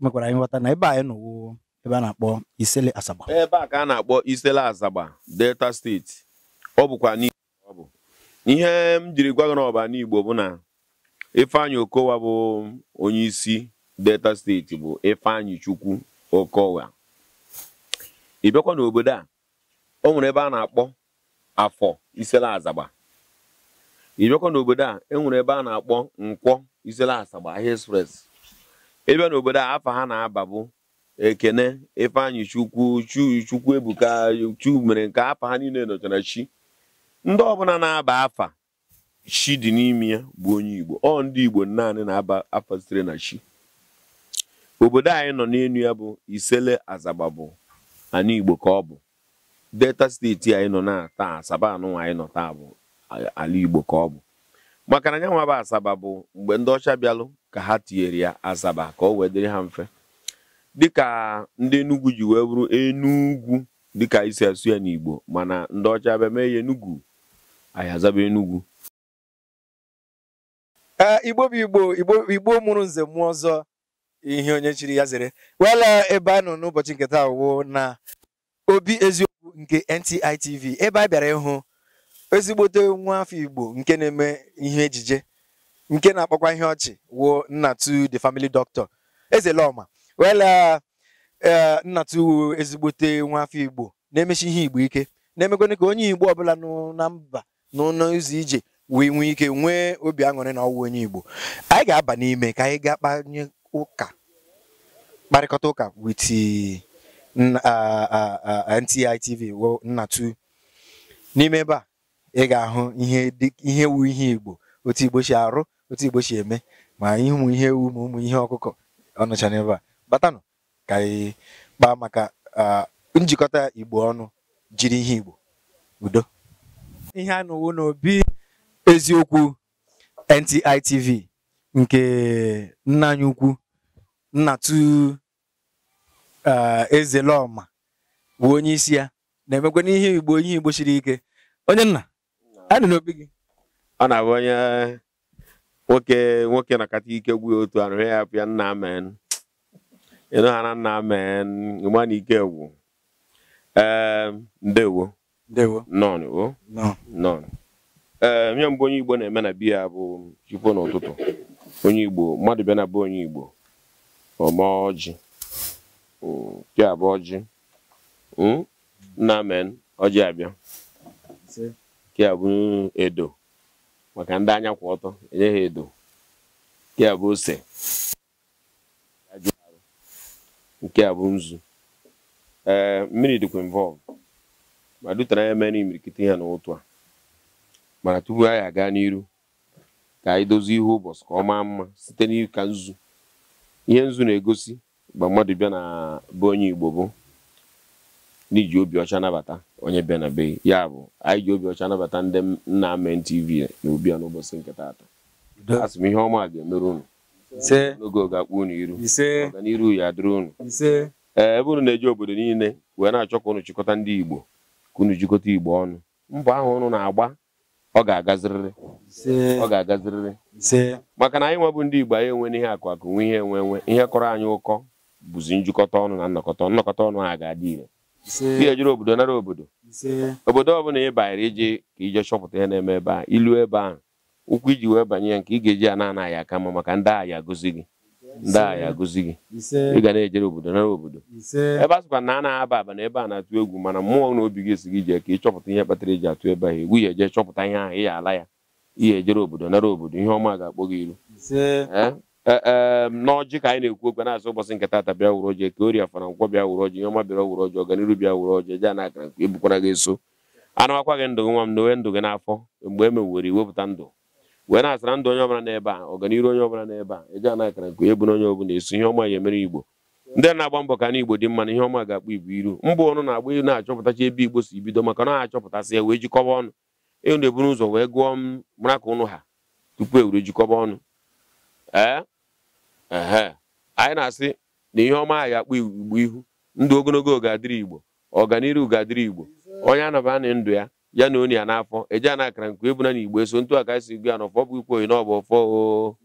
megwara anyị nghọta na ebe anyị nọwo ebe a na-akpọ Isele Asaba ebe a ka a na-akpọ Isele Asaba Delta steeti ọ bụkwa n'igbo ọ bụ ihe m jiri gwa gị n'ọba n'igbo bụ na Ifeanyi Okowa bụ onye isi Delta steeti bụ Ifeanyi Chukwu Okowa ị bịakwa n'obodo a o nwere ebe a na-akpọ afọ Isele Asaba ị bịakwa n'obodo a e nwere ebe a na-akpọ nkwọ Isele Asaba ahịa express ebe n'obodo a afa ha na-aba bụ ekene ifeanyị chukwu chukwu ebuka chu mere nke afọ ha niile nọchara chi ndị ọbụla na-aba afa chi dị n'ime ya bụ onye igbo ọ ndị igbo naanị na-aba afa sitere na chi obodo anyị nọ n'elu ya bụ isele azagba bụ ana igbo ka ọ bụ delta steeti anyị nọ na taa asaba anụnwa anyị nọ taa bụ ala igbo ka ọ bụ maka na nyanwa bụ asaba bụ mgbe ndị ọcha bịalụ ka ha tinyere ya asaba ka o wee dịrị ha mfe dịka ndị enugwu ji wee bụrụ enugwu dịka isi asụ ya n'igbo mana ndị ọcha bịa mee ya enugwu anyị azaba enugwu igbo bụ igbo igbo mụrụ nze mmụọ ọzọ ihe onye chiri ya zere wela ebe a nọ n'ụbọchị nketa taa na obi eziokwu nke NTI ebe a bịara ịhụ ezigbote nwa afọ Igbo nke na-eme ihe ejije nke na-akpọkwa ihe ọchị wuo Nnatu the family doctor Ezeloma wela e, Nnatu ezigbote nwa afọ Igbo na-emechi ihe Igbo ike na-emekwana ka onye Igbo ọbụla na mba n'ụlọ ije wee nwee ike nwee obi aṅụrị na ọwụwa onye Igbo anyị ga-aba n'ime ka anyị gaa kpanye ụka kparịkọta ụka with NTI TV Nnatu n'ime ebe a ị ga-ahụ ihe ihe wu ihe igbo otu igbo si arụ otu igbo si eme ma ịhụ ihe ewu ma ụmụ ihe ọkụkọ ọnụcha n'ebe a batanụ ka anyị kpaa maka njikọta igbo ọnụ jiri ihe igbo udo ihe a nụwo n'obi eziokwu ntitv nke nna ukwu nnatụ ezelọma bụ onye isi ya na-emekwa n'ihe igbo ihe igbo siri ike onye nna adị n'obi gị ọ na-abụ onye nwoke nwoke nakata ike gwụ otu arụ ya apụ ya nna amen ịnụ ha na nna amen ịma na ike gwụ ee ehm, ndewo ndewo nọn o ehm, mbụ onye igbo na-eme na biya bụ chukwu n'ụtụtụ onye igbo mmadụ bịa na bụ onye igbo ọma ọjị hmm, pịa abụ ọjị hmm, nna amen ọjị abịa nke a bụ edo maka ndị anya kwụ ọtọ enye ha edo nke a bụ ose nke a bụ nzu ee mmiri dịkwa involve ma dutere anya mere imirikiti ha n'ụtụ a mana tupu anyị aga n'iru ka anyị dozie ihe ụbọchị ka ọ maa mma site n'ika nzu ihe nzu na-egosi mgbe mmadụ bịa na be onye Igbo bụ n'iji ji obi ọcha nabata onye bịa na be ya bụ anyị ji obi ọcha nabata ndị nna men tv na obi ya n'ụbọchị nke taata asị m ihe ọma ga-emere unu n'oge oge akpụ unu iru ọganiru ya adịrị unu ee e, ebe unu na-eji obodo niile wee na-achọ ka unu chịkọta ndị igbo ka unu jikọta igbo ọnụ mbọ ahụ unu na-agba ọ ga-agazirịrị ọ ga-agazirịrị maka na anyị nwebụ ndị igbo anyị enwe n'ihe akụ akụ nwe ihe enwe enwe ihe kọrọ anyị ụkọ bụzi njikọta ọnụ na nnọkọta nnọkọta ọnụ ha ga-adị ire ihe jere obodo nara obodo obodo ọbụla ị banyere ije ka ije chọpụta ihe na-eme ebe a ilu ebe ahụ ụkwụ iji wee banye ya nke ị ga-eji a na-anaghị aka mma maka ndị agha agụzi gị ndị agha agụzi gị ị ga na-ejere obodo nara obodo ebe a na a na-aba aba na ebe a na-atụ egwu mana mmụọ na obi gị esighị ije ka ị chọpụta ihe kpatara eji atụ ebe ahụ egwu ya eje chọpụta ihe ahụ ị ya ala ya ihe ejere obodo nara obodo ihe ọma ga-akpọ gị iru Eh, ehm, n'ọjị ka anyị na-ekwu okwe na-azụ ụbọchị nke taata bịa wuru ọjị ka oria fara nkwọ bịa wuru ọjị ihe ọma bịara wuru ọjị ọganiru bịa wuru ọjị eje na akara nke ebukwara gị eso anawakwa gị ndụ gị nwa m na onwe ndụ gị n'afọ mgbe e mewere iwepụta ndụ wee na-asara ndụ onye ọbụla n'ebe a ọganiru onye ọbụla n'ebe a eje na akara nke ebu na onye ọbụla eso ihe ọma ya emere igbo ndị na-agba mbọ ka na igbo dị mma na ihe ọma ga-akpụ igbo iru mbụ ọnụ na-agba na-achọpụtacha ebe igbo si bido maka na na-achọpụtasị ya wee jikọba ọnụ enu eburu ụzọ wee gụọ m mara ka ụnụ ha tupu e were jikọba ọnụ ee anyị na-asị na ihe ọma anyị akpọ igbo ihu ndụ ogologo oge igbo ọganiru ga igbo onye anọbanị ndụ ya ya na oni ya n'afọ eji ana akara nke ebuna na igbo eso ntu aka esi gụ ya na ọfọ bụ ikwu oyi n'ọbụ ọfọ o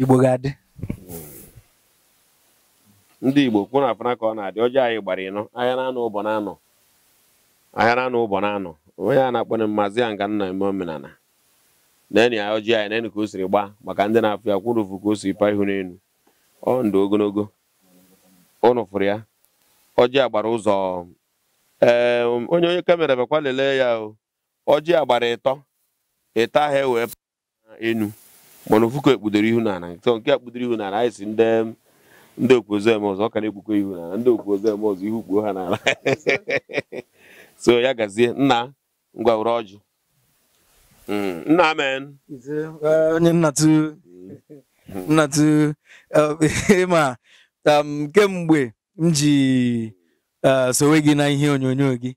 igbo ndị igbo kwu na afana ka ọ na-adị ọjọọ anyị gbara ịnọ ahịa na ụbọ na ụbọ na-anọ onye a na-akpọ mmazi ya nga nna eme omenala na enyi ya ọjị anyị na enyi ka o siri gba maka ndị na-afụ ya kwụrụ ụfụ ka o siri paa ihu n'elu ọ ndụ ogologo ụnụ ya ọjị a gbara ụzọ ee onye onye kamera bekwa lelee ya o ọjị a gbara ịtọ ịta ahụ ewee enu mana ofu ka ekpudoro ihu n'ala nke nke ekpudoro ihu n'ala anyị si ndị ndị okpuozu eme ọzọ ọ ka na ihu n'ala ndị okpuozu eme ọzọ ihu kpuo ha n'ala so ya gazie nna ngwawere ọjị mm, nna amen onye nnatụ eh, ma ịma um, kemgbe m ji eh, sowe gị na ihe onyonyo gị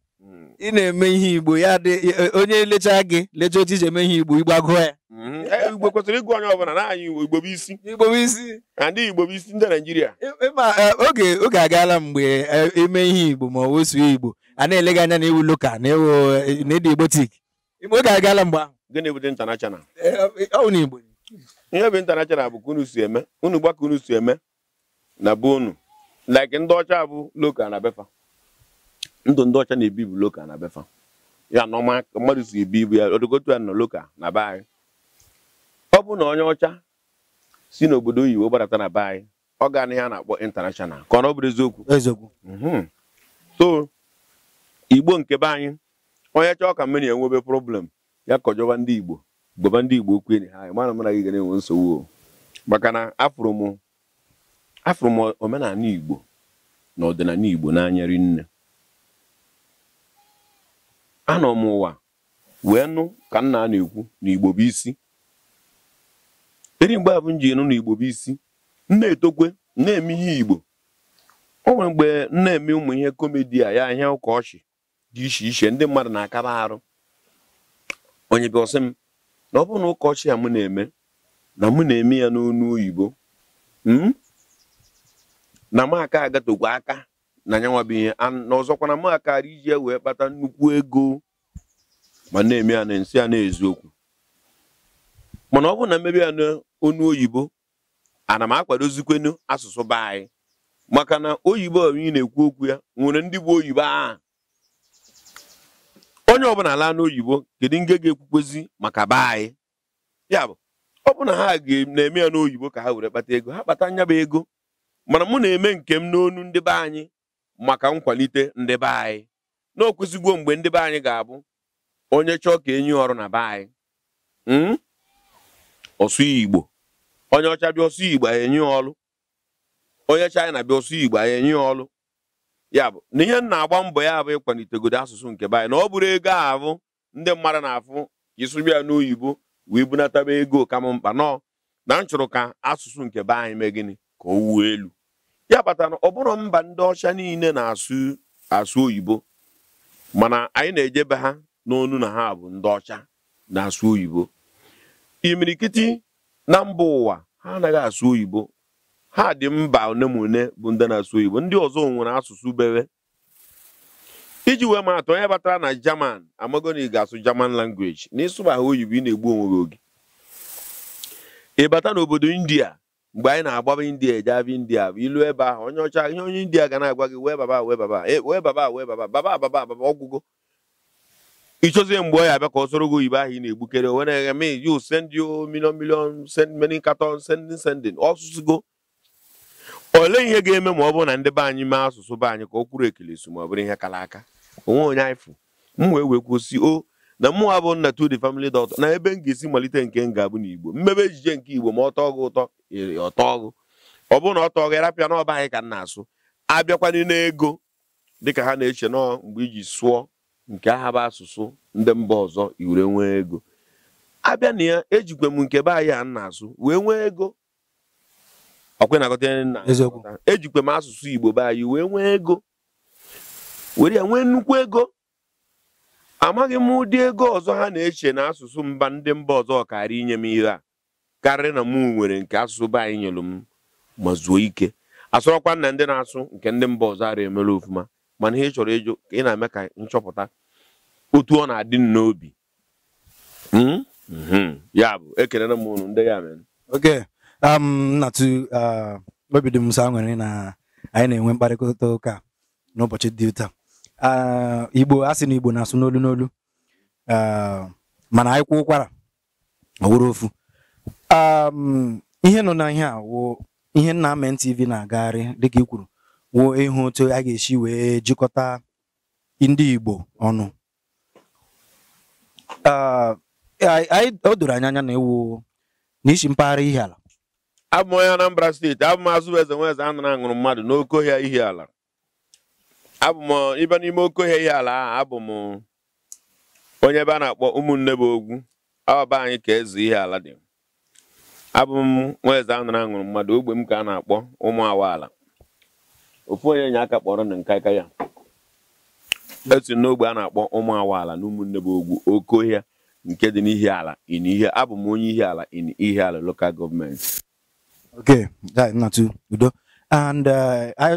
ị na-eme ihe igbo ya dị onye lechaa gị lechaa otu iji eme ihe igbo igbo agụọ ya mm-hmm. eh, igbo kwesịrị ịgụ onye ọbụla na naanị igbo bụ isi igbo bụ isi ndị igbo bụ isi ndị naijiria oge oge agaala mgbe eme ihe igbo ma ọ wesuo igbo a na-ele gị anya na ewu loka na ewu na ede igbotik igbo ga-agala mgbe ahụ gịnị bụ dị international e, ọwụ na igbo ihe bụ international bụ ka unu si eme unu gba ka unu si eme na be unu like ndị ọcha bụ loka na befa ndụ ndị ọcha na-ebi bụ loka na befa ya na mmadụ si ebi ibu ya odogotu ya nọ loka na be anyị ọ bụ na onye ọcha si n'obodo oyibo gbadata na be anyị ọ ga na ihe a na-akpọ international ka ọ na ọ bụrụ eziokwu eziokwu mhm. so igbo nke be anyị onye chọọ ka mmiri enwebe problem ya kọjọba ndị igbo bụba ndị igbo okwu enyi ha anyị mana mara gị ga na-enwe nsogbu maka na afụrụ m omenala igbo na ọdịnala igbo n'anya rinne anọ m ụwa wee nụ ka nna a na-ekwu na igbo bụ isi eri mgbe abụ m ji nụ na igbo bụ isi na-etokwe na-eme ihe igbo o nwere mgbe m na-eme ụmụ ihe komedi a ya ihe ụka ọchị dị iche iche ndị mmadụ na-akaba arụ onye bịa ọsị m na ọ bụ na ụkọchị a m na-eme na mụ na-eme ya n'onu oyibo hmm? na m aka agatokwa aka na nyanwa bụ ihe na ọzọkwa na m akara iji ya wee kpata nnukwu ego ma na-eme ya na nsị ya na mana ọ bụ na mmebi ya n'onu oyibo ana m akwadozikwenu asụsụ be anyị maka na oyibo ị na-ekwu okwu ya nwere ndị bụ oyibo ahụ onye ọbụla ala n'oyibo kedu nge ga-ekwukwezi maka be anyị ya bụ ọ bụ ha na-eme ya n'oyibo ka ha were kpata ego ha kpata nyaba ego mana m na-eme nke m n'onu ndị be anyị maka nkwalite ndị be anyị na mgbe ndị be anyị ga-abụ onye chọọ ka enyi ọrụ na be anyị hmm? ọsụ igbo onye ọcha bịa ọsụ igbo enye ọlụ onye bịa ọsụ igbo enye ọlụ ya bụ na ihe na-agba mbọ ya bụ ịkwalitegodo asụsụ nke be anyị na ọ bụrụ ego ahụ ndị mmadụ na-afụ ịsụrụ ya n'oyibo wee bunataba ego kama mkpa nọ na m chụrụ ka asụsụ nke be anyị mee gịnị ka o wuo elu ya kpatara na ọ bụrụ mba ndị ọcha niile na-asụ asụ oyibo mana anyị na-ejebe ha n'onu na ha bụ ndị ọcha na-asụ oyibo imirikiti na mba ụwa ha anaghị asụ oyibo ha dị mba one bụ ndị na-asụ Igbo ndị ọzọ nwere asụsụ bere iji wee ma onye batara na German amago na ị ga-asụ German language na ịsụba oyibo ị na-egbu onwe oge ị bata n'obodo India mgbe anyị na-agbaba India eje India bụ ilu ebe ahụ onye ọcha ihe onye India ga na-agwa gị wee baba wee baba wee baba wee baba baba baba baba ọgwụgo ịchọzie mgbe ọ ya abịa ka ọ soro gị oyibo ahụ ị na-egbukere onwe na-eghe me you send you million million send many sending sending ọsụsụgo olee ihe ga-eme ma ọ bụrụ na ndị be anyị mee asụsụ be anyị ka o kwuru ekelesu ma ọ bụrụ ihe kara aka onwe onye anyị fụ m wee wekwusi o na mụnwa bụ nna to the family doctor na ebe m ga-esi malite nke m ga-abụ n'igbo mmebe ejije nke igbo ma ọ tọọ gị ụtọ ọtọ ọgụ ọ bụrụ na ọ tọọ gị rapịa n'ọba anyị ka m na-asụ abịakwana n'ego dịka ha na-eche nọọ mgbe iji sụọ nke aha bụ asụsụ ndị mba ọzọ iwere nwee ego abịa na ya ejikwe m nke be anyị a na-asụ wee nwee ego ọkwa na-agọta nna ejikwa e m asụsụ Igbo be anyị wee nwee ego were ya nwee nnukwu ego amaghị m ụdị ego ọzọ ha na-eche na asụsụ mba ndị mba ọzọ karịa inye m ihe a karịrị na mụ nwere nke asụsụ be anyị nyelụ m ma zuo ike asụrọkwa nna ndị na-asụ nke ndị mba ọzọ ara emere ofụma mana ihe chọrọ ịjụ ka ị na-eme ka nchọpụta otu ọ na-adị n'obi hmm? Hmm. ya bụ ekelere m ụnụ ndị ya mere Um, na-atụ uh, obi dị m sọ aṅụrị na anyị na-enwe mkparịta ụka n'ụbọchị dị taa uh, igbo a sị na igbo na-asụ n'olu n'olu uh, mana anyị kwụ ụkwara ọwụrụ ofu um, ihe nọ na ihe a ihe nna Amen TV na-agagharị dịka i kwuru woo ịhụ otu a ga-esi wee jikọta ndị igbo ọnụ o doro anya anya na ewu n'isi mpaghara ihe ala abụ m onye Anambra steeti abụ m azụ eze nwa eze anụrụ aṅụrụ mmadụ n'oke ihe ala abụ m ibe n'ime oke ihe ala ahụ abụ m onye ebe a na-akpọ ụmụnne bụ ogwu ọba anyị ka eze ihe ala dị abụ m nwa eze anara aṅụrụ mmadụ ogbe m ka a na-akpọ ụmụ awaala ofu onye nye aka kpọrọ na nka aka ya etu n'ogbe a na-akpọ ụmụ awaala na ụmụnne bụ ogwu oke nke dị n'ihe ala in ihe abụ m onye ihe ala in ala lokal gọọmenti okay uh, oh, na too udo and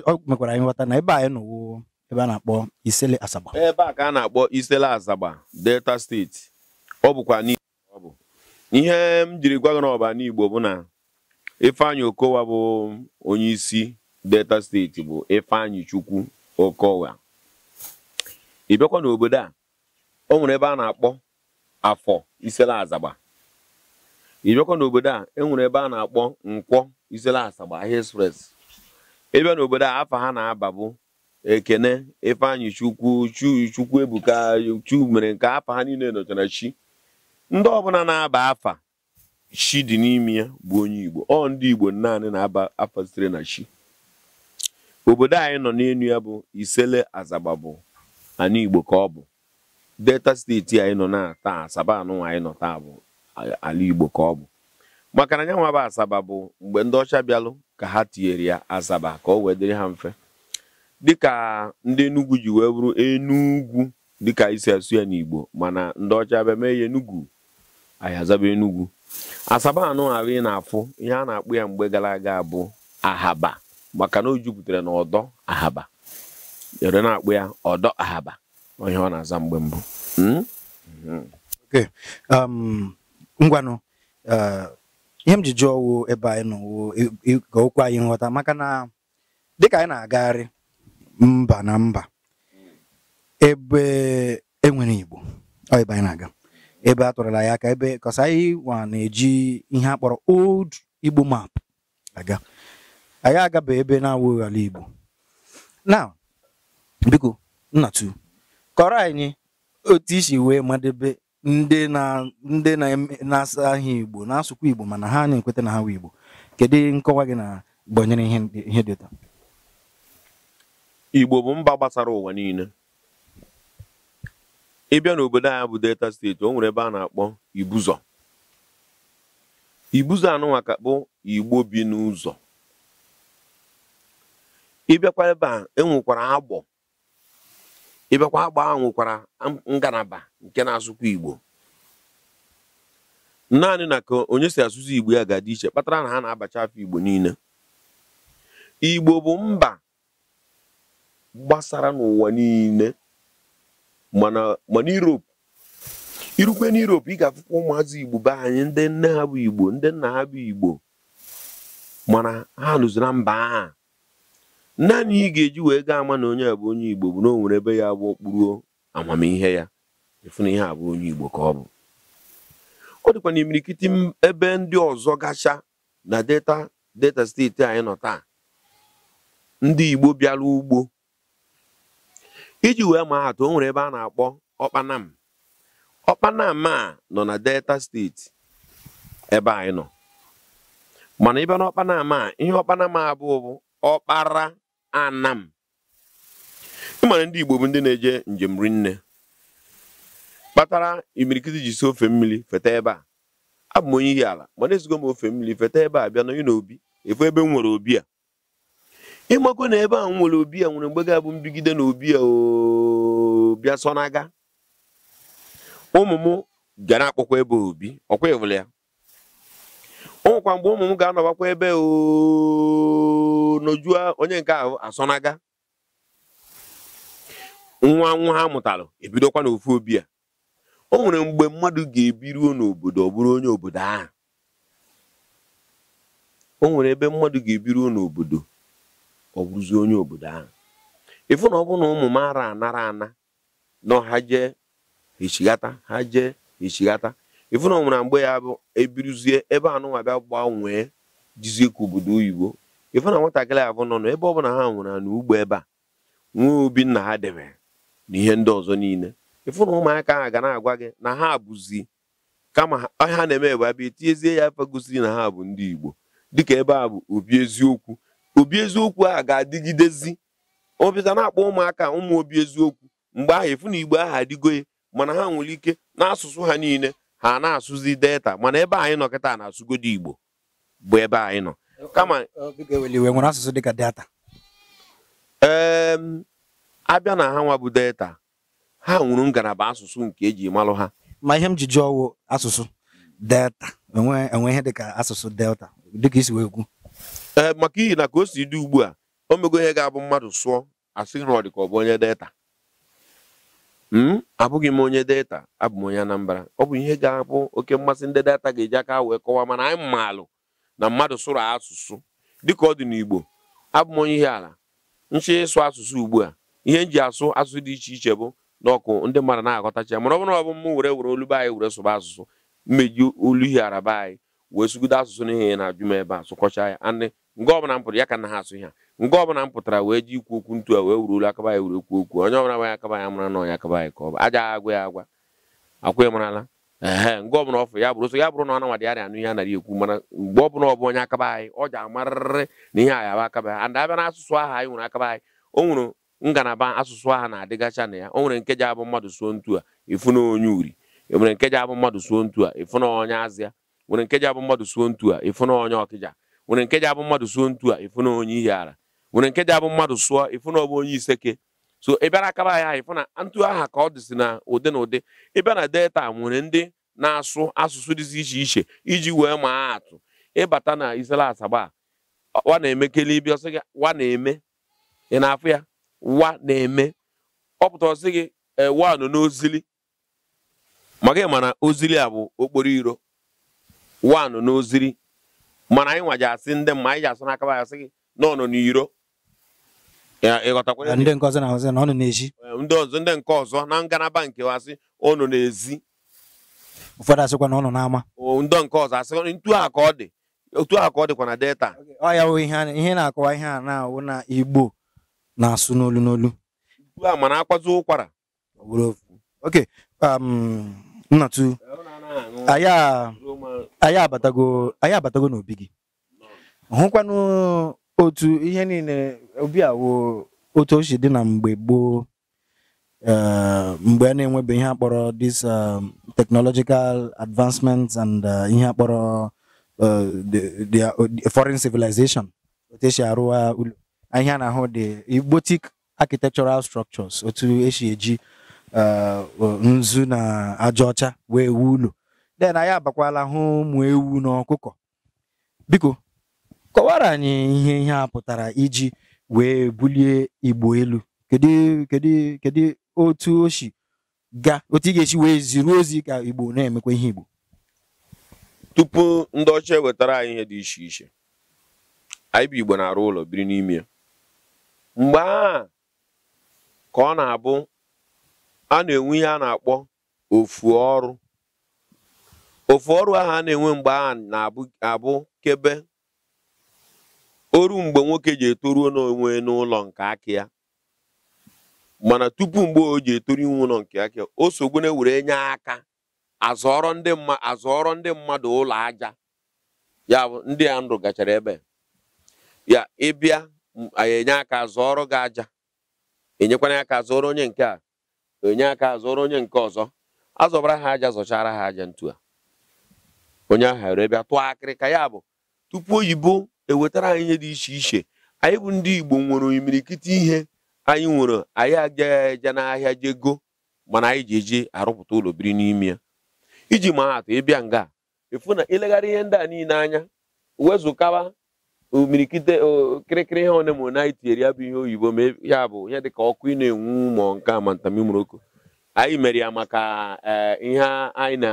ọ mekwara anyị nghọta na ebe anyị nọwo ebe a na-akpọ Isele Asaba ebe eh, a ka a na-akpọ Isele Asaba Delta steeti ọ bụkwa ọ bụ ihe m jiri gwa gị n'igbo bụ na Ifeanyi Okowa bụ onye isi Delta steeti bụ Ifeanyi Chukwu Okowa ị n'obodo a o nwere ebe a na-akpọ afọ Isele azaba. ịbịakwa n'obodo a enwere ebe a na-akpọ nkwọ izere asagba ahịa express ịbịa n'obodo a afa ha na-aba bụ ekene ifeanyị chukwu chukwu ebuka chu mere nke afa ha niile nọchara chi ndị ọbụla na-aba afa chi dị n'ime ya bụ onye igbo ọ ndị igbo naanị na-aba afa sitere na chi obodo anyị nọ n'elu ya bụ isele azagba bụ ana igbo ka ọ bụ delta steeti anyị nọ na taa asaba anụnwa anyị nọ taa bụ ala Igbo ka ọ bụ maka na nyanwa Asaba bụ mgbe ndị ọcha bịalụ ka ha tinyere ya Asaba ka o wee dịrị ha mfe dịka ndị Enugu ji wee bụrụ Enugwu dịka isi asụ ya n'Igbo mana ndị ọcha bịa mee ya enugwu anyị azaba Enugu Asaba anụ ahụ ị na-afụ ihe a na-akpụ ya mgbe gara aga bụ Ahaba maka na o jupụtara na ọdọ Ahaba ere na-akpụ ya ọdọ Ahaba onye ọ na-aza mgbe mbụ hmm? um, ngwanụ eh, ihe m ji jụọ wo ebe anyị nọ wo ka okwu anyị nghọta maka na dịka anyị na-agagharị mba na mba ebe enwere Igbo ọ ebe anyị na-aga ebe a tụrụla ya aka ebe kọsa anyị wa na-eji ihe a kpọrọ old Igbo map aga anyị agaba ebe na-awụghị ala Igbo na biko nnatu kọrọ anyị otu isi wee madebe ndị na ndị na-asaghị Igbo na-asụkwa Igbo mana ha na-ekweta na ha wee Igbo kedu nkọwa gị na gbanyere ihe dị ụta Igbo bụ mba gbasara ụwa niile ịbịa n'obodo a bụ Delta steeti o nwere ebe a na-akpọ Ibuzọ Ibuzo anụnwa ka Igbo bi n'ụzọ ịbịakwa ebe a enwekwara agbọ ịbịakwa agba ahụ nwekwara ngalaba nke na azụkwa igbo naanị na ka onye si asụsụ igbo ya ga-adị iche kpatara na ha na-abacha afọ igbo niile igbo bụ mba gbasara n'ụwa niile mana Europe irukwe na Europe ị ga-afụkwa ụmụazụ igbo be anyị ndị nne ha bụ igbo ndị nna ha bụ igbo mana ha nụzi mba aha naanị ị ga-eji wee gaa ama na onye a bụ onye igbo bụ na o nwere ebe ya bụ okpuru amamihe ya efu na ihe a bụ onye igbo ka ọ bụ ọ dịkwa na imirikiti ebe ndị ọzọ gacha na deta deta steeti anyị nọ taa ndị igbo bịara ugbo iji wee maa atụ o nwere ebe a na-akpọ ọkpanam ọkpanam a nọ na delta steeti ebe anyị nọ mana ebe na ọkpanam a ihe ọkpanam abụọ bụ ọkpara anam ịmara ndị Igbo bụ ndị na-eje njem rinne kpatara imirikiti ji si ofe mmiri feta ebe a abụ m onye ihi ala na ezigo m ofe mmiri feta ebe a bịa na n'obi efu ebe m nwere obi a ịmakụ na ebe a m nwere obi a nwere mgbe ga-abụ mbigide na obi a ooo, sonaga ụmụ m gara akpọkwa ebe obi ọkwa ịhụrụ ya o nwekwa mgbe ụmụ m ga-anọbakwa ebe nojua onye nke ahụ asọnaga nwa nwa ha mụtalụ ebidokwa n'ofu obi a o nwere mgbe mmadụ ga-ebiruo n'obodo ọ onye obodo ahụ o nwere ebe mmadụ ga-ebiruo n'obodo ọ onye obodo ahụ ịfụ na ọ ụmụ m ara anara ana na ha jee echighata ha jee echighata ịfụna ọnwụna mgbe ya bụ ebiruzie ebe anụnwa bịa gbanwee jizie ka obodo oyibo na nwatakịrị abụ nọ nọ ebe ọbụla ha nwụrụ na ugbo ebe a nwee obi nna ha debe na ihe ndị ọzọ niile ịfụna ụmụaka ahụ ga na-agwa gị na ha abụzi kama ha na-eme ebe abịa etinyezie ya afa gosiri na ha bụ ndị igbo dịka ebe a bụ obi eziokwu obi eziokwu a ga-adịgidezi obita na-akpọ ụmụaka ụmụ obi eziokwu mgbe ahụ ịfụna igbo ahụ adịgo mana ha nwere ike n'asụsụ ha niile ha na-asụzi delta mana ebe anyị nọ kịta na-asụgodo igbo bụ ebe anyị nọ kama nwere asụsụ dịka delta ee abịa na ha nwa bụ delta ha nwụrụ ngalaba asụsụ nke eji malụ ha ma ihe m ji jụọ ọwụ asụsụ delta enwe ihe dịka asụsụ delta dịka isi wee kwu ee maka ihi na ka o si dị ugbu a o mego ihe ga-abụ mmadụ sụọ asị rọ dị ka ọ bụ onye delta m hmm? abụghị m onye data abụ m onye Anambra ọ bụ ihe ga-abụ oke mmasị ndị data ga-eji aka wee kọwaa mana anyị maalụ na mmadụ sụrụ asụsụ dịka ọ dị n'Igbo abụ m onye ihe ala nchi ịsụ asụsụ ugbu a ihe m ji asụ asụsụ dị iche iche bụ n'ọkụ ndị mmadụ na-aghọtacha mana ọ bụrụ na ọ bụ m were were olu anyị were sụba asụsụ mmeji olu ihe araba anyị wee sụgide asụsụ n'ihe na-ajụ m ebe a sụkọcha ya nge ọbụla m pụrụ ya ka na ha asụ ha nga ọbụla m pụtara wee ji ikwu okwu ntu a wee wuru olu akaba ya wuru okwu okwu onye ọbụla gbanye akaba ya mara na ọnya akaba ya ka ọ bụ aja agwa ya agwa akwa marala ee nga ọbụla ọfụ ya bụrụ so ya bụrụ na ọ nawadị arịa anụ ihe anaghị ekwu mana mgbe ọ bụla ọbụ onye akaba anyị ọ ji amarịrị na ihe anyị aba akaba ya abịa na asụsụ aha anyị nwere akaba anyị o nwere ngalaba asụsụ aha na-adịgacha na ya o nwere nkeji abụ mmadụ suo ntu a ịfụ na onye uri nwere nke nkeji abụ mmadụ suo ntu a ịfụ na onye azịa nwere nkeji abụ mmadụ suo ntu a ịfụ na onye ọkịja nwere nke abụ mmadụ suo ntu a ịfụ na onye ihe ara nwere nke abụ mmadụ sụọ ịfụ na ọ onye iseke so ị bịara akaba ya ịfụ na ntụ aha ka ọ dịsị na ụdị na ụdị ị na delta nwere ndị na-asụ asụsụ dịzi iche iche iji wee maa atụ ịbata na isela asaba wa na-emekele ibi ọsị gị wa na-eme ị na-afụ ya wa na-eme ọ pụta ọsị gị ewa eh, nọ n'ozili maka ịma na ozili a bụ okporo iro wa nọ n'ozili mana anyị nwaji asị ndị mma anyị ji asụ n'aka asị gị na ọ nọ n'iro ndị ọzọ ndị nke ọzọ na ngalaba nke asị ọ nọ n'ezi ụfọdụ asịkwa na ọ nọ n'ama ndị nke ọzọ asị ntu a ka ọ dị otu a ka ọ dịkwa na delta ọ wụ ihe na-akọwa ihe a na-awụ na igbo na-asụ n'olu n'olu a mana akwazi ụkwara oke um, nnatu anyị abatago n'obi gị hụkwanụ otu ihe niile obi awo otu oshi dị na mgbe gboo eh, mgbe a na-enwebe ihe akpọrọ this um, technological advancement and uh, ihe akpọrọ uh, the uh, foreign civilization otu esi arụwa ụlọ ihe a na-ahụ dị igbotic architectural structures otu esi eji nzu na aja ọcha wee wuo ụlọ den anyị abakwala hụ ụmụ ewu na ọkụkọ biko kọwara anyị ihe ihe a pụtara iji wee bulie igbo elu kedu otu o ga otu ị ga-esi wee ziri ozi ka igbo na-emekwa ihe igbo tupu ndị ọcha ewetara anyị ihe dị iche iche anyị bụ igbo na-arụ ụlọ biri n'ime mgbe a ka ọ na-abụ a na-enwe ihe a na-akpọ ofu ọrụ ofu ọrụ ahụ a na-enwe mgbe a na-abụ kebe oru mgbe nwoke ji etoruo n'onwe n'ụlọ nke aka ya mana tupu mgbe o ji etoru iwu ụlọ nke aka ya o sogbu na-ewere nye aka azọrọ ndị ndị mmadụ ụlọ aja ya bụ ndị a ndụ gachara ebe ya ịbịa anyị enye aka zọọrọ gị aja enyekwana ka zọrọ onye nke a onye aka zụrụ onye nke ọzọ azọbara ha aja zọchara ha aja ntu a onye ahụ ere bịa tụọ akịrịka ya bụ tupu oyibo ewetara anyị ihe dị iche iche anyị bụ ndị Igbo nwere imirikiti ihe anyị nwere anyị agaghị eje n'ahịa jego mana anyị ji eji arụpụta ụlọ biri n'ime ya iji maa atụ ịbịa nga efu na ileghara ihe ndị a niile anya wezụkawa omirikite kịrịkịrị ihe na mụrụ na anyị tinyere ya bụ ihe oyibo ma ya bụ ihe dịka ọkụ ị na-enwu ma nke a ma anyị mere ya maka eh, ihe anyị na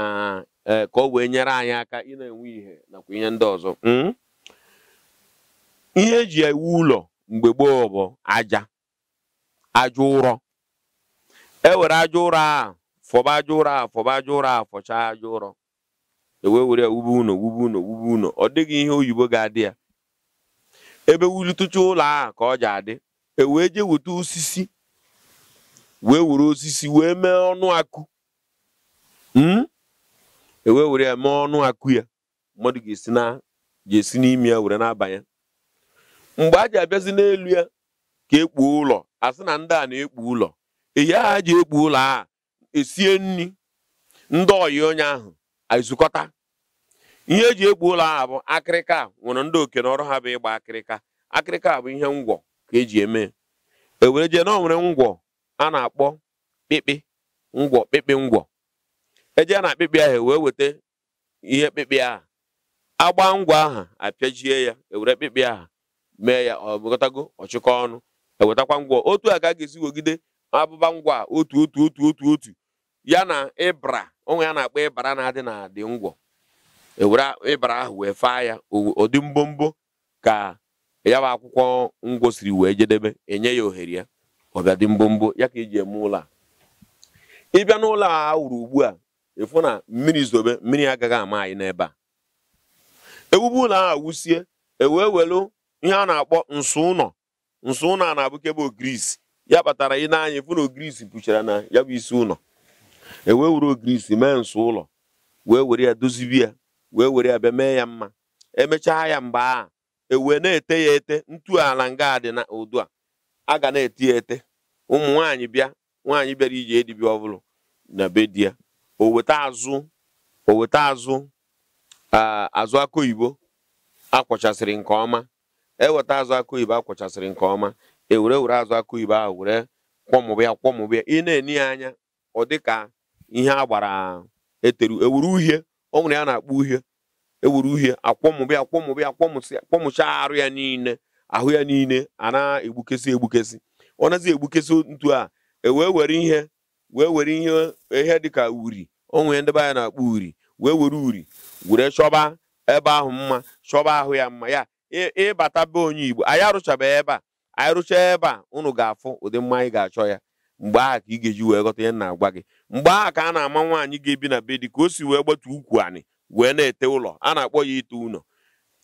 eh, ka ọ wee nyere anyị aka ị na-enwe ihe nakwa ihe ndị ọzọ hmm? ihe eji ewu ụlọ mgbe gboo bụ aja aja ụrọ ewere aja ụrọ a fọba aja ụrọ a fọba aja ụrọ a fọchaa aja ụrọ ewee were ya wube ụnọ wube ụlọ wube ụlọ ọ dịghị ihe oyibo ga-adị ya ebe wulitụcha ụlọ ahụ ka ọ ji adị e wee jee weta osisi wee were osisi wee mee ọnụ akụ hmm? e wee were ya mee ọnụ akụ ya mmadụ ga-esi n'ime ya were na-abanye mgbe a ji abịazi n'elu ya ka ekpuo ụlọ a sị na ndị a na-ekpu ụlọ ehi aha ji ekpu ụlọ a esie nri ndị ọyị onye ahụ aizukọta ihe eji ekpu ụlọ a bụ akịrịka nwere ndị oke n'ọrụ ha bụ ịgba akịrịka akịrịka bụ ihe ngwọ ka eji eme ewere jee na onwere ngwọ a na-akpọ kpịkpị ngwọ kpịkpị ngwọ eje na akpịkpị ahụ e wee weta ihe kpịkpị ahụ agba ngwọ aha apịajie ya ewere kpịkpị aha mee ya ọ bụgotago ọchịkọ ọnụ ewetakwa ngwọ otu a ka a ga-esi wegide abụba ngwa otu otu otu otu otu ya na ịbra onwe ya na-akpọ ịbara na-adị na adị ngwọ ewere ịbara ahụ wee faa ya ụdị mbombo ka ya bụ akwụkwọ ngwo siri wee jedebe enye ya ohere ya dị mbombo ya ka eji eme ụlọ a ịbịa n'ụlọ a wuru ugbu a ịfụ na mmiri zobe mmiri agaghị ama anyị n'ebe a ewube ụlọ a wusie ewee welu ihe a na-akpọ nso ụlọ nso ụlọ a na bụ ogirisi ya kpatara ị n'anya anya ịfụ na ogirisi pụchara na ya bụ isi ụlọ ewee were ogirisi mee nso ụlọ wee were ya dozibi ya wee were ya bịa mee ya mma emechaa ya mgbe a ewee na-ete ya ete ntu ala nga dị na udu a a ga na-eti ya ete ụmụ nwaanyị bịa nwaanyị bịara iji edibia ọbụlụ na be di ya oweta azụ oweta azụ azụ akụ oyibo akwọchasịrị nke ọma eweta azụ akụ oyibo akwọchasịrị nke ọma ewere were azụ akụ oyibo ahụ were kwọmụbịa kwọmụbịa ị na-eni ya anya ọ ka ihe a gbara eteru ewuru uhie ọ nwere ya na-akpọ uhie ewere uhie akwọmụbịa akwọmụbịa akwọmụsị akwọmụcha arụ ya niile ahụ ya niile a na-egbukesi egbukesi ọ nazi egbukesi ntu a ewee were ihe wee were ihe ihe dịka uri onwe ndị be na-akpọ uri wee were uri were chọba ebe ahụ mma chọba ahụ ya mma ya ịbata be onye Igbo anyị arụchabeghị ebe a anyị rụchaa ebe a unu ga-afụ ụdị mma anyị ga-achọ ya mgbe aha ka ị ga-eji wee ghọta ihe na-agwa gị mgbe aha ka a na-ama nwaanyị ga-ebi na be dị ka o si wee gbatu ukwu anị wee na-ete ụlọ a na-akpọ ya ite ụlọ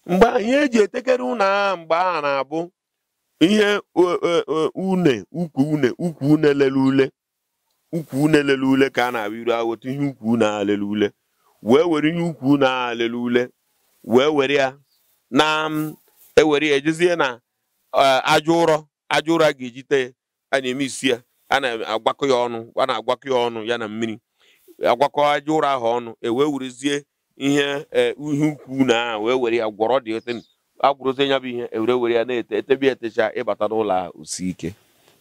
mgbe ihe eji etekere ụlọ mgbe na-abụ ihe e, e, e, une ukwu une ukwu une lele ule ukwu une lele ule ka a na-abụ iru aghọta ihe ukwu une aha lele ule wee were ihe ukwu une aha lele ule wee were ya na ewere ya ejezie na aja ụrọ aja ụrọ a ga-eji tee a na-eme isi ya a na-agwakọ ya ọnụ a na-agwakọ ya ọnụ ya na mmiri agwakọ aja ụrọ ahụ ọnụ e wee werezie ihe e, ihe ukwu na aha wee were ya gwọrọ dị ote agwụrụte ya bụ ihe ewere were ya na-ete etebi etecha ịbata n'ụlọ a osi ike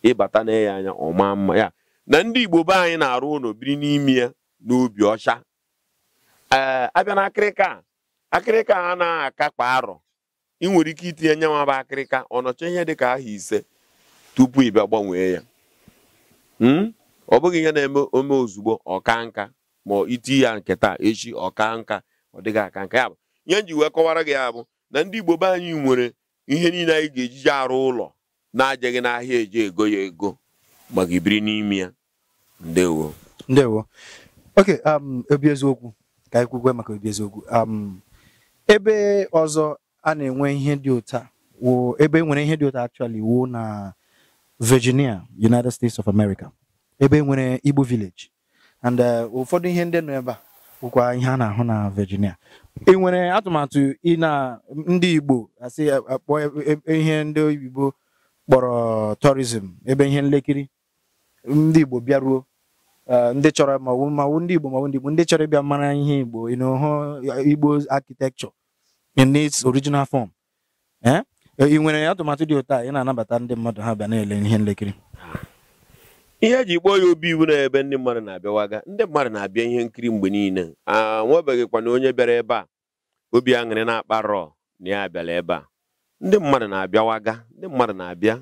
ịbata na ya anya ọma mma ya na ndị Igbo be anyị na-arụ ụlọ biri n'ime ya n'obi ọcha ee abịa na akịrịka akịrịka a na-akakpa arọ ị nwere ike itinye nye bụ akịrịka ọ nọcha ihe ka aha ise tupu ị bịa gbanwee ya Hmm? ọ bụghị ihe na-eme ome ozugbo ọka nka ma iti ya nke taa echi ọka nka ọ dịghị aka nka ya bụ ihe nji wee kọwara gị ya bụ na ndị Igbo be anyị nwere ihe niile anyị ga-ejiji arụ ụlọ na-ajeghị n'ahịa eji ego ya ego maka ibiri n'ime ya ndewo ndewo oke um, obi eziokwu ka anyị kwukwe maka obi eziokwu um, ebe ọzọ a na-enwe ihe dị ụta ebe e nwere ihe dị ụta achọli wuo na Virginia United States of America ebe nwere Igbo village and uh, ụfọdụ ihe ndị nọ ebe a bụkwa ihe a na-ahụ na Virginia ị e nwere atụmatụ ị na ndị Igbo asị akpọ e, e, ihe ndị igbo kpọrọ tourism ebe ihe nlekiri ndị Igbo bịaruo uh, ndị chọrọ maọbụ ma ndị Igbo ma ndị Igbo ndị chọrọ ịbịa mara ihe Igbo ịnọhụ Igbo architecture in its original form eh? Eh, ị nwere atụmatụ dị ụtọ a ị na-anabata ndị mmadụ ha bịa na-ele ihe nlekiri ihe ji kpọọ ya obi iwu na ebe ndị mmadụ na-abịawaga ndị mmadụ na-abịa ihe nkiri mgbe niile anwebeghịkwana onye bịara ebe a obi aṅụrị na-akpa rọọ na ya bịara ebe a ndị mmadụ na-abịawaga ndị mmadụ na-abịa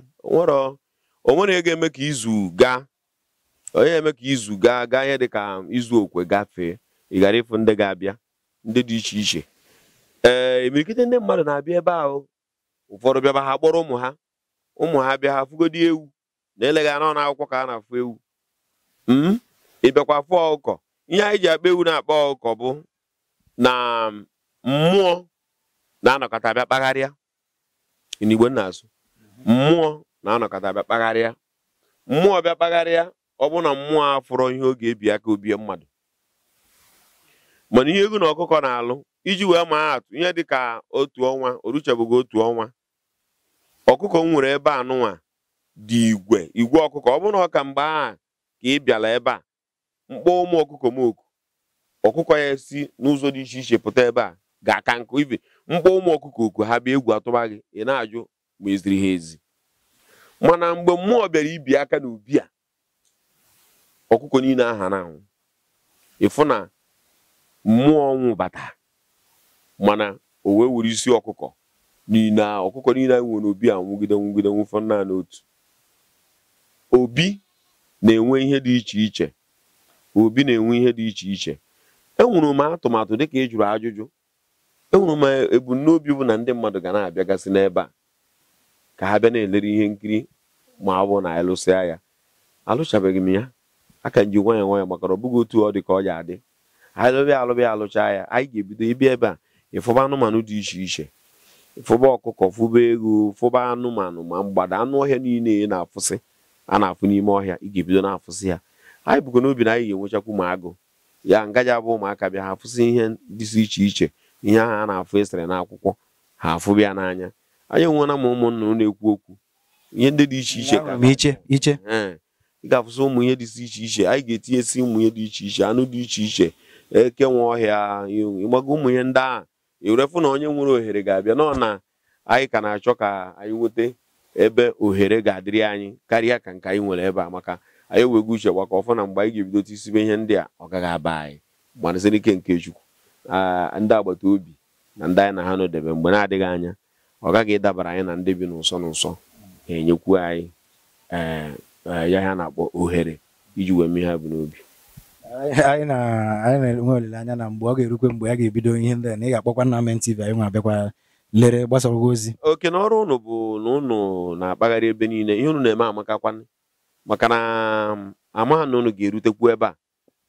onwere ego eme ka izu gaa onye eme ka izu gaa gaa ihe dịka izu okwe gafee ị ghara ịfụ ndị ga-abịa ndị dị iche iche ee eh, imirikite ndị mmadụ na-abịa ebe ahụ ụfọdụ bịaba ha kpọrọ ụmụ ha ụmụ ha bịa ha fụgodi ewu na eleghị anọ akwụkwọ ka a na-afụ ewu m hmm? ịbịakwa fụ ọkụkọ ihe anyị ji akpa ewu na-akpa ọkụkọ bụ na um, mmụọ na-anọkọta bịa kpagharịa n'igbo nna asụ mmụọ na-anọkọta bịa kpagharịa mmụọ bịa kpagharịa ọ bụ na mmụọ fụrọ ihe oge ebi aka obie mmadụ mana ihe egwu na ọkụkọ na-alụ iji wee maa atụ ihe dịka otu ọnwa oruchebụghị otu ọnwa ọkụkọ m nwere ebe anụnwa dị igwe igwe ọkụkọ ọ bụrụ na ọ ka mgbe a ka ị bịara ebe a mkpọ ụmụ ọkụkọ m oku ọkụkọ ya si n'ụzọ dị iche iche pụta ebe a ga-aka nkụ ibe mkpọ ụmụ ọkụkọ oku ha bịa egwu atụba gị ị na-ajụ ma eziri ha ezi mana mgbe mmụọ bịara ibi aka n'ubi a ọkụkọ niile aha na ịfụ na mmụọ ọnwụ bata mana o wee were isi ọkụkọ niile ọkụkọ niile anyị nwere obi a nwụgide nwụgide nwụfọ naanị otu obi na-enwe ihe dị iche iche obi na-enwe ihe dị iche iche enwere m atụmatụ dịka ị jụrụ ajụjụ enwere m ebumnobi bụ na ndị mmadụ ga na-abịagasị n'ebe a ka ha bịa na-elere ihe nkiri ma ọ bụ na anyị ya alụchabeghị m ya aka nji nwayọ nwayọ maka ọ bụghị otu ọ dị ka ọ ya adị anyị lụbịa alụbịa alụcha ya anyị ga-ebido ịbịa ebe a ịfụba anụmanụ dị iche iche ịfụba ọkụkọ fụba ego fụba anụmanụ ma mgbada anụ ọhịa niile ị na-afụsị a na-afụ n'ime ọhịa ị ga-ebido na-afụsị ya anyị bụkwa n'obi na anyị ga-enwechakwu ma agụ ya ngaja bụ ụmụaka bịa ha afụsị ihe dịsị iche iche ihe ahụ a na-afụ esere akwụkwọ ha afụbịa n'anya anyị nwena m ụmụnna na-ekwu okwu ihe ndị dị iche iche ị ga-afụsị ụmụ ihe si iche iche anyị ga-etinyesi ụmụ ihe dị iche iche anụ dị iche iche eke ọhịa ịgbago ụmụ ihe ndị ahụ iwerefu na onye nwere ohere ga-abịa nọ na anyị ka na-achọ ka anyị nweta ebe ohere ga-adịrị anyị karịa ka nke anyị nwere ebe a maka anyị ewego uche gbaka ọfụ na mgbe anyị ga-ebidote isibe ihe ndị a ọ gaghị aba anyị gbanasịrị ike nke chukwu ndị agbata obi na ndị anyị na ha nọdebe mgbe na-adịghị anya ọ gaghị ịdabara anyị na ndị bi n'ụsọ n'ụsọ ga-enyekwu anyị ee eh, eh, ya ha na-akpọ ohere iji wee mee ha bụ n'obi anyị na-enwe olileanya na mgbe ọ ga-erukwe mgbe ya ga-ebido ihe ndị a na ị ga-akpọkwa nna anyị nwa abịakwa lere gbasarago ozi oke na ọrụ ụnụ bụ na ụnụ na-akpagharị ebe niile ihe ụnụ na-eme amakakwa maka na amaghị na ụnụ ga-erutekwu ebe a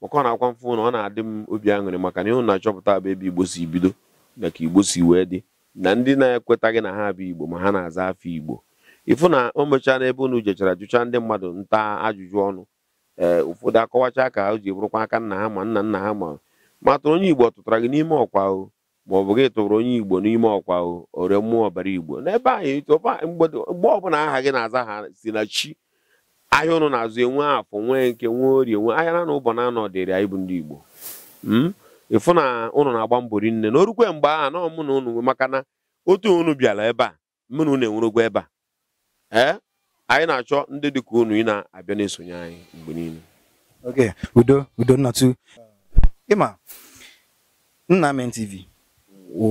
maka ọ na-akwa mfụ na ọ na-adị m obi aṅụrị maka na ihe unu na-achọpụta abụ ebe igbo si bido na ka igbo si wee dị na ndị na-ekwetaghị na ha bụ igbo ma ha na-aza afọ igbo ịfụ na o mechaa n'ebe ụnụ jechara jụchaa ndị mmadụ nta ajụjụ ọnụ ee eh, ụfọdụ akọwachaa ka ha ji bụrụkwa aka nna ha ma nna nna ha ma ma tụrụ onye igbo tụtara gị n'ime ọkwa o ma ọ bụ gị tụrụ onye igbo n'ime ọkwa o ore mmụọ ọbara igbo n'ebe anyị mgbe ọbụla aha gị na-aza ha si na chi ahịa ụnụ na-azụ enwe afọ nwee nke nwee orie nwee ahịa na ụbọ na-anọ dịrị anyị bụ ndị igbo hmm? ịfụ na ụnụ na-agba mbọ rinne na orukwe mgbe aha nọ mụ na ụnụ maka na otu ụnụ bịara ebe a mụ na ụnụ enwerogwa ebe a ee eh? anyị na-achọ ndị dị ka unu ị na-abịa na-esonye anyị mgbe niile oge udo udo nnatu ịma Nnamen TV wụ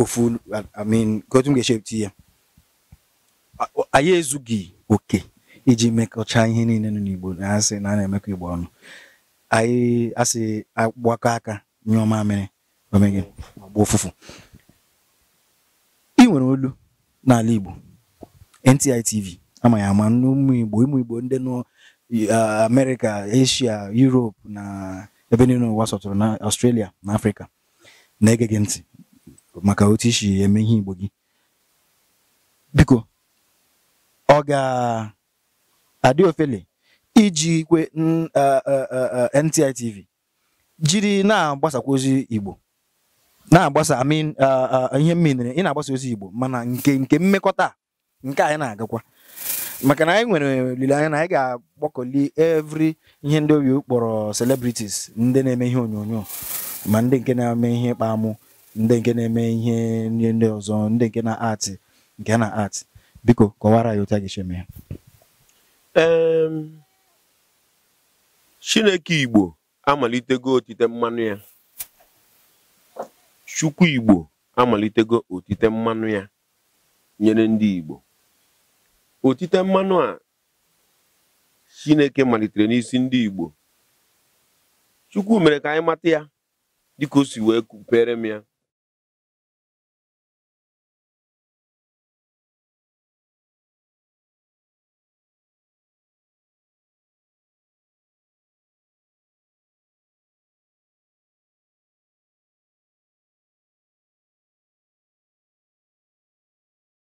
ofu mean gotum ga-echepụta ya anyị ezughị oke iji mekọcha ihe niile nọ n'Igbo na-asị na a na-emekọ Igbo ọnụ anyị asị agbakọ aka nyụọ mamịrị omeghị ọgba ụfụfụ ị nwere olu n'ala Igbo ntitv TV ama ama n'ụmụ Igbo ụmụ Igbo ndị nọ amerika Asia Europe na ebe niile ụwa sọtụrụ na Australia na Afrịka na-ege gị ntị maka otu isi eme ihe Igbo gị biko ọ ga-adị ofele iji kwe NTI jiri na-agbasakwa ozi Igbo na-agbasa amin ihe mmiri ị na-agbasa ozi Igbo mana nke nke mmekọta nke anyị na-agakwa maka na anyị nwere olileanya na anyị ga-agbakọli evri ihe ndị obi kpọrọ celebrities ndị na-eme ihe onyonyo ma ndị nke na-eme ihe ịkpa amụ ndị nke na-eme ihe ndị ọzọ ndị nke na atị nke na atị biko kọwara ya otu a ga-esi ya Chineke Igbo amalitego otite mmanụ ya Chukwu Igbo amalitego otite mmanụ ya nyere ndị Igbo otite mmanụ a chineke malitere n'isi ndị igbo chukwu mere ka anyị mata ya dịka o si wee kupere m ya